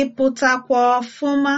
ị ọfụma